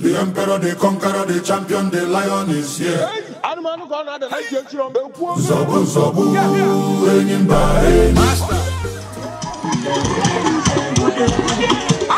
The emperor, the conqueror, the champion, the lion is here. Zobu, zobu, reigning by Master. Ah,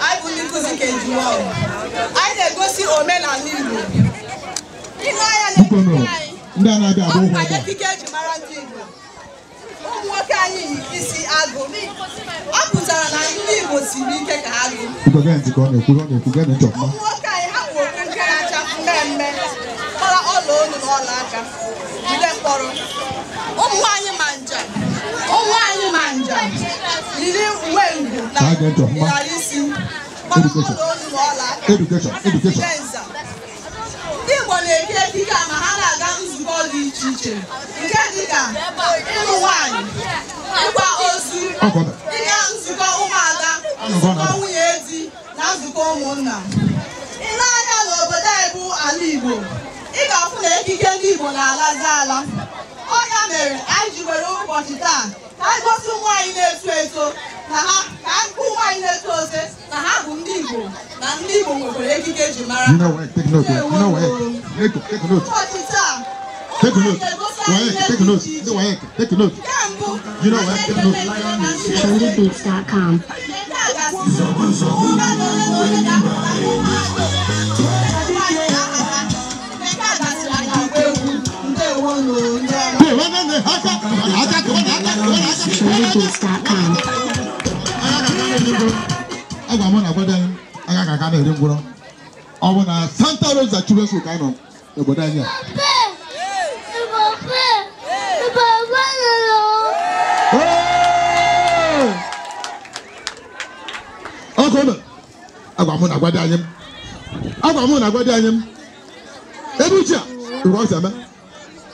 anyị bụ ndị nkụzi ka ejiwa anyị na-egosi omenala Igbo ile anya na abụ eji mara ndị Igbo ụmụ nwoke anyị yi isi agụ ọ pụtara na ndị Igbo siri ike ka ha gụ ụmụ nwoke anyị ha nke na-acha mmemme kpara ọla olu na ọla aka jide mkpọrọ ụmụ yiri uwe na ịghara isi ndị Igbo na ma ha na-aga nzukọ dị iche iche nke dịka nwanyị ịgba ozu ịga nzukọ ụmụada nwunye ezi na nzukọ ụmụnna N'anya n'obodo bụ ala Igbo ị ga na ekike ndị Igbo na-alazi ala ha mere anyị ji were ụbọchị taa ka anyị gosi nwaanyị na ha ka kwụ nwaanyị ose na ha bụ ndị Igbo na ndị Igbo nwekwara ekike mara Take a look. take a look. take a look. You Take a look. a ga na obodo anyị aga ka aka na-eri ngwụrọ ọ bụ na Santa Rosa Children's ka nọ n'obodo anyị a agwa mụ na agwa dị anyị m ebe uche a ọzọ eme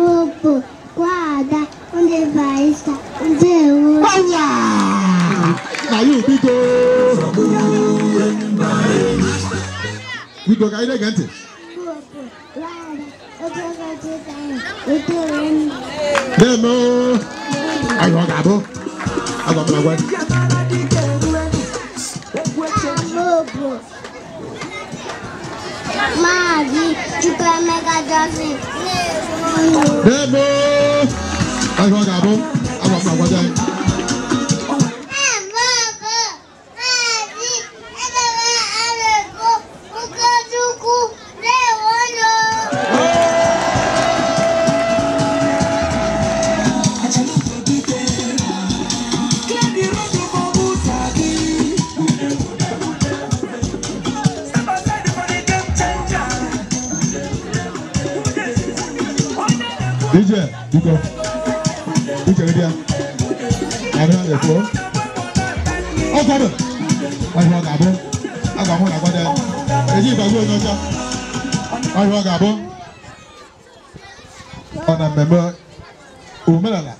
lobo, guarda, onde vai estar o Deus? Olá! Caiu, Vitor! Vitor, cai elegante. Lobo, guarda, onde vai estar o Deus? Demo! Aí, ó, acabou. Agora, pelo amor tipo, é mega dose. Debo. That's what I Biko. Biko ni dia. Ari na ko. O ko do. Ari wa ga bo. Aga mo na ko de. Eji ba go no ja. Ari wa ga bo. Ona mmemme omenala.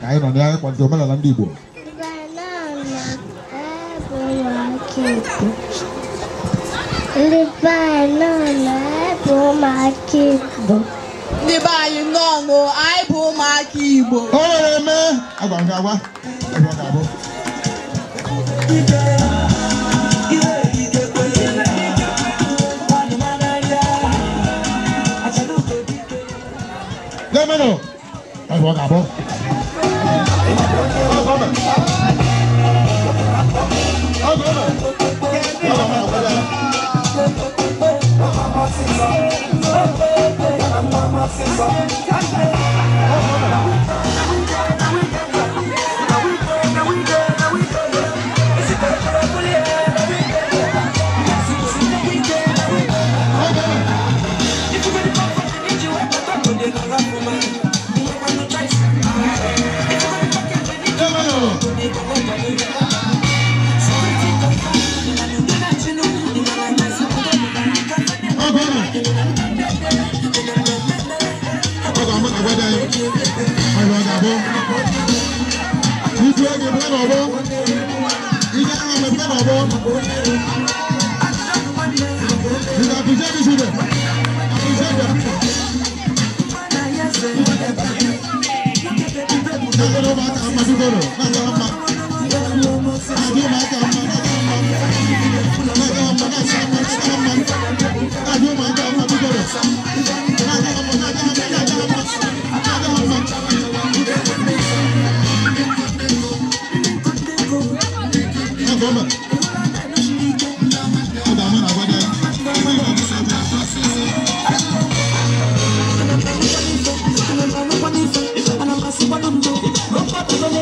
Ka anyị nọ na ya kwado omenala ndị Igbo. Ndị be anyị nọ na-ebe ụmụaka Igbo. ndị be anyị nnọọ anyị bụ ụmụaka Igbo o nwere eme agwa nke agwa agwa nke abụọ Lẹ́mọ̀nà, ẹ̀rọ kàbọ̀. Thank you. That's ってくる。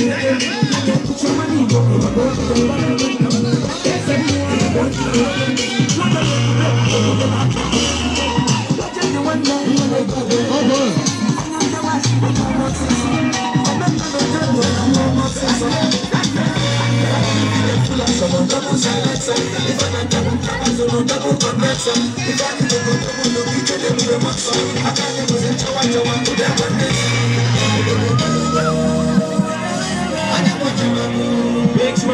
I can go, I will look at them with a I can't represent how I want to them.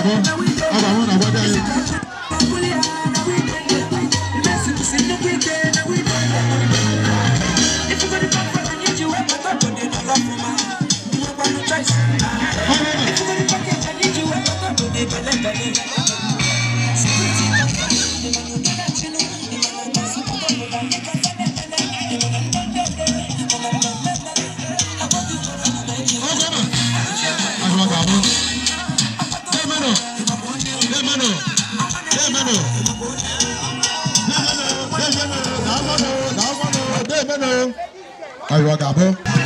Thank you. Amen. Ayọ̀ àgàbọ̀.